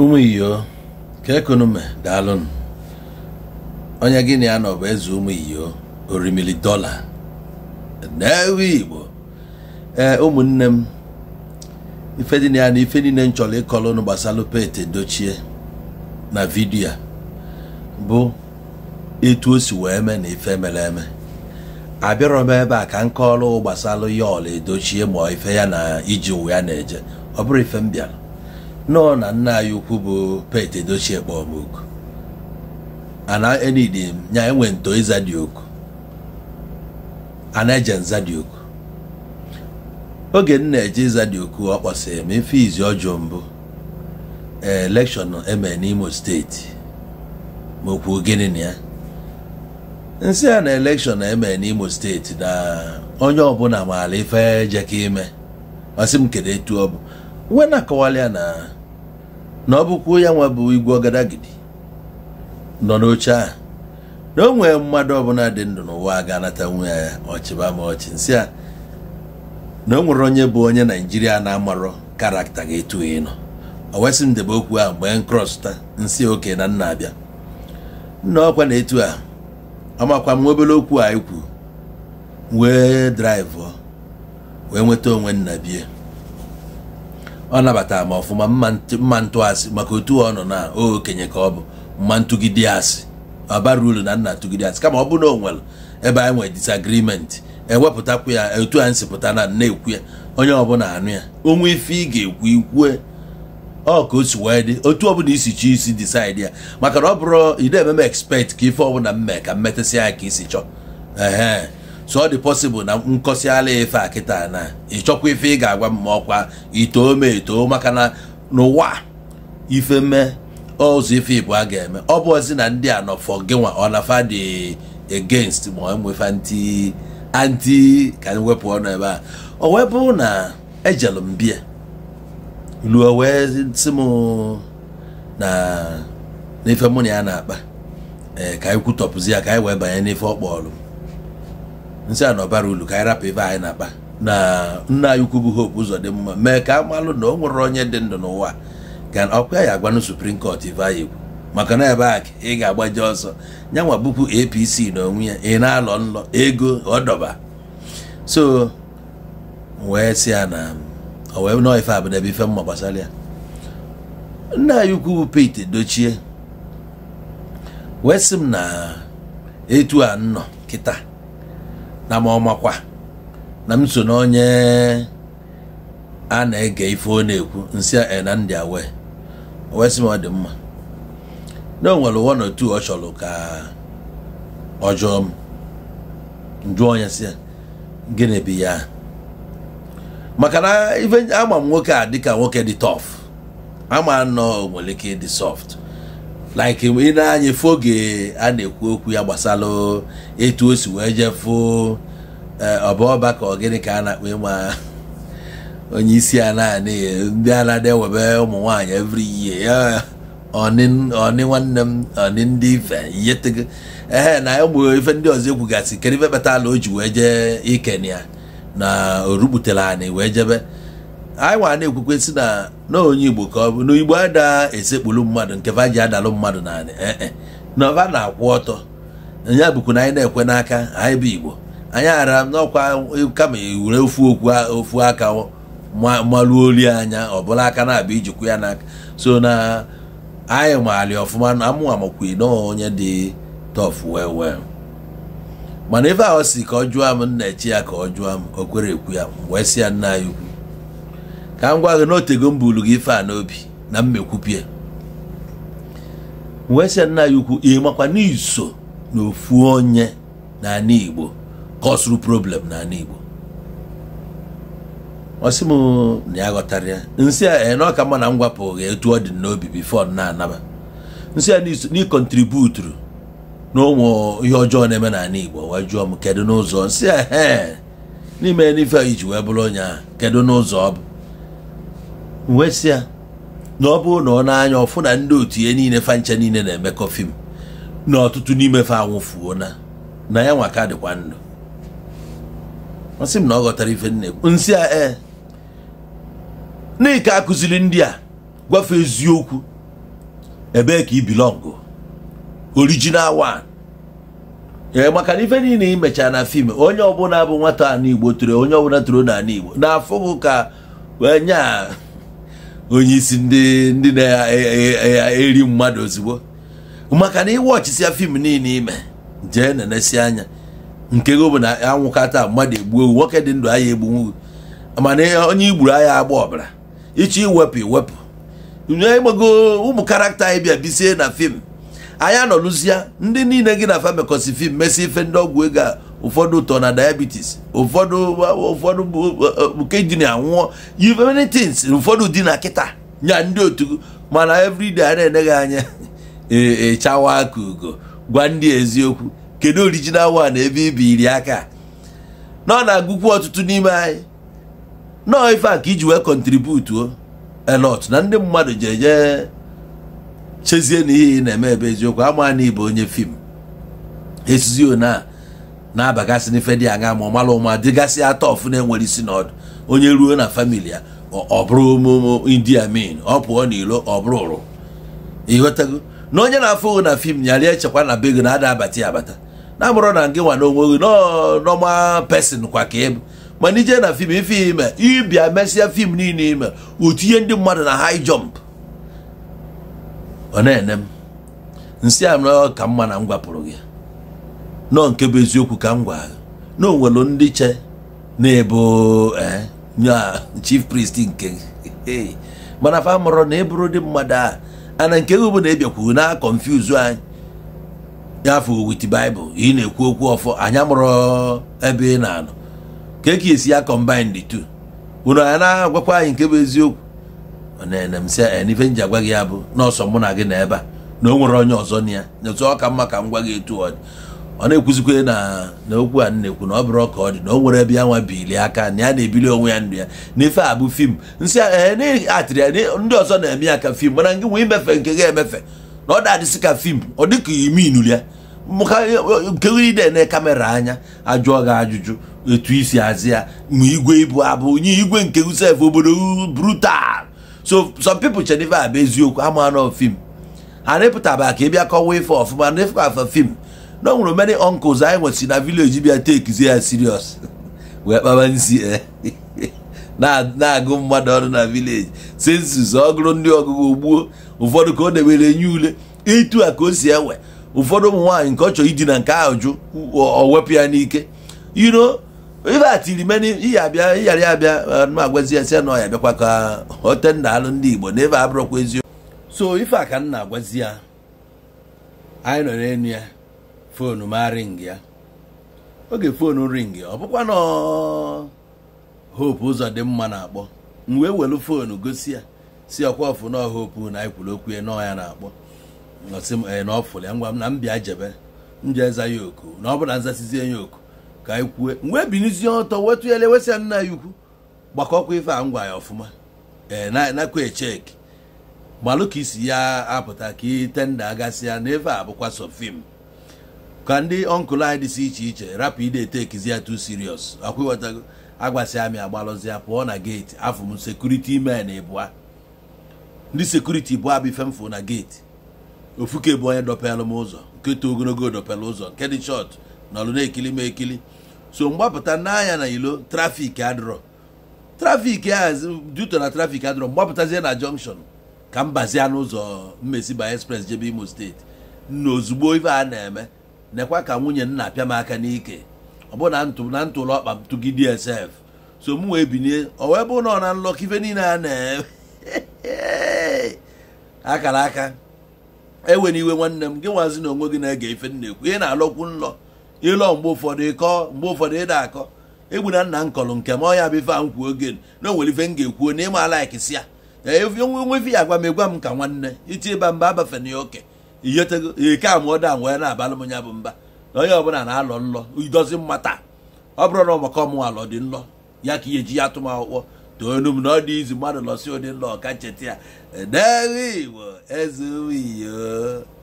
ụmụ iyo ka ekonume daalụnụ onye gị na ya nọbụ bụ eze ụmụ iyo orimili dọla n'ewe igbo ee ụmụnne m ife dị na ya na ife niile m chọrọ ịkọrọ unu gbasara Pete Edochie na vidiyo a bụ etu o si wee mee na ife mere eme abịarọ m ebe a ka m kọrọ gbasara ya ọla Edochie ma ife ya na iji ụwa ya na-eje ọ bụrụ ife m bịara nọọ na nna anyị ukwu bụ Pete Edochie kpọmọkụ ana enidi nya enwe nto ịza dị oku ana eje nza dị oku oge m na-eje ịza dị oku ọ kpọsịrị m ife izi ọjọọ mbụ e, elekshọn eme n'Imo steeti ma okwu gịnị na ya nsị a na elekshọn eme n'Imo steeti na onye ọbụla maara ife jeka ime masị m kedu etu ọ bụ wena akọwala ya na na ọ bụkwa ya nwa bụ igwe ọgadagidi nọ n'oche a na o nwere mmadụ ọbụla dị ndụ n'ụwa ga-anata nwe ya ọchịba ma ọchị nsị a na o nwere onye bụ onye naijiria na-amarọ karakta ga-etu ịnọ ọ wesị m okwu ahụ mgbe nkrọsụta nsị oke na nna abịa nna ọkwa na-etu a amakwa m obere okwu a ikwu wee draịvụ wee nweta onwe nna bie ọ nabatara m ọfụma mma asị maka otu ọ nọ na okenye ka ọ bụ mma ntụgide asị ọbara uru na nna tụgide asị kama ọ bụrụ na onwere ebe anyị nwere disagrimenti ewepụtakwu ya etu anyị si pụta na na-ekwu ya onye ọbụla anụ ya onwe ife ị ga-ekwu ikwue ọ ka o si wee dị otu ọbụla isi chọọ isi disaidi ya maka na ọ bụrụ ị na-eme m expect ka ife ọbụla mme ka mmetasị ya ka isi chọọ so ọ dị possible na nkọsiala ife a kịta na ịchọkwa ife ị ga-agwa m ọkwa itoo me etoo maka na n'ụwa ife mee ọzọ ife ịbụ a ga-eme ọ bụ ozi na ndị a nọ fọ gịnwa ọ na fa dị against ma enwefa ntị anti ka anyị wepụ ọnụ ebe a o wee bụrụ na ejelu m bia luo wee sị m na n'ife mụ na ya na-akpa ee eh, ka anyị kwutọpụzi ya ka anyị wee banye n'ife ọ kpọọlụ m nsị a na ọbara ulu ka anyị rapụ ife anyị na-akpa na nna anyị ukwu bụ Hope Uzodimma mee ka a na o nwere onye dị ndụ n'ụwa ka ọkwa ya agwanụ Supreme Court ife anyị ekwu maka na ebe a ị ga-agbaje ọsọ nyanwa bupu APC na onwe ya ị na-alọ nlọ ego ọdọba so wee sị ya na o wee nọọ ife abụda ebe ife mma gbasara ya nna anyị ukwu bụ Pete dochie wee sị m na etu a nnọ kịta na ọ ọmakwa na m so na onye a na-ege ife ọ ekwu nsị a na ndị awe wee sị m ọ dị mma na o nwere one or two ọ chọrọ ka ọ jụọ m njụọ onye si gịnị ya maka na ife ama m nwoke a dịka nwoke dị tọf ama nọ nwere ike ịdị sọft like ị na-anya efu oge a na-ekwu okwu ya gbasara etu o si wee jefu eh, ọbaọba ka ọ gịnị ka a na-akpa ịma onye isi a naanị ndị a na-adị ewebe ụmụ nwaanyị every year ọnị nwanne m ọnị ndị ife yetego ee na ụmụ ife ndị ọzọ ekwugasị kedu ife ala o ji wee jee ikenya na o rubutere anyị wee jebe anyị nwara na-ekwukwe si na n'onye igbo ka ọ bụ na igbo ada esekpulu mmadụ nke va ji adalụ mmadụ naanị ee eh, eh. na na-akwụ ọtọ ya bụkwa na anyị na-ekwe n'aka anyị bụ igbo anyị ara n'ọkwa kama were ofu ofu aka malụ olu anya ọ bụla aka na-abịa ijikwa ya n'aka so na anyị maali ọfụma na mụnwa amakwi na onye dị tọf wee wee mana ife ahụ si ka ọ jụọ m nna echi ya ka ọ jụọ m o kwere ekwu ya wee si ya nna anyị ukwu ka m gwa gị na otego m buru gị ife a n'obi na mmekwupie wee sị nna ya ukwu ịmakwa n'iso na ofu onye n'ala Igbo kọsuru problem n'ala Igbo ọ sị m na ya ghọtara ya nsị a na ọka mma na m gwapụ etu ọ dị n'obi bifo na-anaba nsị a n'ịkọntributuru na ụmụ ihe ọjọọ na-eme n'ala Igbo wee jụọ m kedu n'ụzọ nsị a n'ime n'ife iji wee bụrụ onye kedu n'ụzọ ọ bụ nwesịa na ọ bụrụ na ọ na-anya ọfụ na ndị otu ihe niile fancha niile na-emekọ fim na ọtụtụ n'ime fa anwụfuo na na ya nwa dịkwa ndụ masị m na ọ ghọtara ife nne nsị a ee n'ike akụziri ndị a gwafe eziokwu ebee ka ibilọngụ original one ee maka na ife niile imechaa na fim onye ọbụla bụ nwata a anigbo toro onye ọbụla toro n'ala igbo na afụ bụ ka wee nyaa onye isi ndị ndị na-eri e, e, e, mmadụ ozugbo maka na ịwọchisia fim niile ime jee nenesi anya nke gị bụ na anwụkata mmadụ egbuo ewu nwoke dị ndụ aya egbunwu mana onye igburu aya agba ọbara ịchọ iwepụ iwepụ ịgbago ụmụ karakta anyị bịa bisie na fim anyị anọlụzia ndị niile gị na famikosi fim mesi ife ndị ọgwụ ego a ụfọdụ ụtọ na diabetes ụfọdụ ụfọdụ nke ji na anwụọ many ụfọdụ dị na kịta nya ndị otu mana everyday a na-eneghị anya echawa e, aka ugo gwa ndị eziokwu kedu original wa na ebe iri aka nọ na-agụkwu ọtụtụ n'ime anyị nọọ ife a ka iji wee kọntributuo elot na ndị mmadụ eje chezie na ihe na-eme ebe eziokwu ama na ịbụ onye fim esizi ona na-abagasị n'ife dị anya ma ọmala ụma dịgasị atọ ọfụ na-enwere isi n'ọdụ onye ruo na famili ya ọ bụrụ mụmụ india min ọ pụọ n'ilo ọ bụrụ ụrụ ịghọtago na onye na-afụ na fim nyarịa echekwa na be gị na-ada abata ya abata na amụrụ na gị nwa na onwe gị nọma pesin kwa ka ịbụ mana ije na fim ife ime ịbịa mesịa fim niile ime utinye ndị mmadụ na hai jọmp ọ na-ene m nsị anọ ka mma na m gwapụrụ gị nọ nke bụ eziokwu ka m gwa na onwelu ndị che na-ebo e, ya chief priest nke mana fa mụrụ na ịbụrụ dị mmadụ a ana nke gị bụ na ebiakwu na konfuzu anyị ya wit baịbụl ị na-ekwu okwu ọfọ anyị amụrụ ebe ị na-anọ ka e ka esi ya combine the two unu anyị na-agwakwa anyị nke bụ eziokwu na m si e, n'ife m ji agwa gị ya bụ nọọsọ mụ na gị na ebe a na o nwere onye ọzọ na ya nyetụ ọ ka mma ka m gwa gị etu ọ dị ọ na-ekwuzikwe na na okwu a na-ekwu na ọ bụrụ ọka ọ dị na o nwere ebe ya nwa bili aka na ya na-ebili onwe ya ndụ ya n'ife a bụ fim nsị eh, atịrị ya ndị ọzọ na-eme ya ka fim mana gị nwee imefe nke ga-emefe na ọ dadịsị ka fim ọ dị ka iminuli ya nkegide na kamera anya ajụọ gị ajụjụ etu isi azị ya ma igwe ibu abụ onye igwe nke usef obodo brutal so some people chere ife a bụ eziokwu ama nọ fim a na-epụtaba ka ị bịa kọwa ife ọfụma na ife afa fim Eh? na o nwere many uncles anyị nwesi na village bịa tekizie ya serious wee kpaba nsi na-agụ mmadụ ọrụ na village sensus ọgụrụ ndị ọgụgụ gbuo ụfọdụ ka ọ na-ewere nye ule ịtụ a ka o si enwe ụfọdụ ụmụ nwaanyị nke ọ chọrọ idi na nke ahụ jụ o wepụ ya n'ike iro ibe atiri meni ihe abịa ịghara ya abịa ma uh, agwazi ya si ya na ọya bịakwa ka hotenna alụ ndị Igbo na ebe abụrụkwa eziokwu so ife a ka m na-agwazi ya anyị nọ n'elu ya fonu ma ring ya oge fonu ring ọ bụkwa na hope ụzọ dị mma na-akpọ m wee welu fonu gosi ya si ọkwa ọfụ na hope na ikwuru okwu ya nọọ ya na-akpọ ya ngwa m na m jebe m eza ya oku na ọ bụ nzasizie ya oku ka anyị kwue wee binizie ọtọ wetu ya lewesịa nna ya ukwu gbakọkwa ife a ngwa ya ọfụma ee nakwa echeki gbalụ ka isi ya apụta ka itenda agasị ya na ife a bụkwa sofim fim ka ndị ọnkụl anyị dịsị iche iche rapụ ide etekizi ya tu serious akwụwatago agbasi amị agbalụzia pụọ na geeti afụ m sekuriti men ịbụa ndị sekuriti bụ abụ ifemfụ na geeti ofuke bụ onye dọpelụ m ụzọ nke too ogologo dọpelụ ụzọ nke dị chọt nọlụ na-ekili m ekili so mgbapụta n'anya na ilo trafik adịrọ trafik a duto na trafik adịrọ mgbapụtazie na jọnkshọn ka m bazia n'ụzọ mmesi by express jebe imo steeti na ozugbo ife a na-eme nekwa ka nwunye nna pịa m aka n'ike ọ bụ na na ntụlụ ọkpa m tụgị dsf so m wee binye ọ wee bụ na ọ na nlọkọ ife niile a na akara aka ewena iwe nwanne m gị nwazi na onwe gị na-ege ife m ekwu ị na-alọkwu nlọ ịlọ mgbe ụfọdụ ịkọ mgbe ụfọdụ ịda akọ egbu na nna m kọrọ nke m ọya bụ ife a kwuo oge na onwere ife m ga-ekwuo na ịma si ya onwe ife ya agwa m egwa m ka nwanne iti ịba mba abafe ya oke ihetego ike a wee na-abalụ m ya bụ mba na onye ọbụla na-alọ nlọ idozi mmata ọ bụrụ na ọmaka alọ dị nlọ ya ka ihe ji ya akwụkwọ toonu m na ọ dị izu mmadụ lọsi ụdị nlọ ọka ncheta ya edeghị igbo eze